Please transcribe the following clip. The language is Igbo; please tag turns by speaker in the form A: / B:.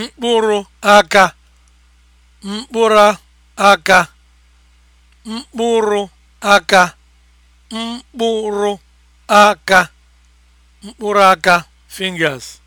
A: mkpụrụ aka mkpụrụ aka mkpụrụ aka mkpụrụ aka mkpụrụ aka fingers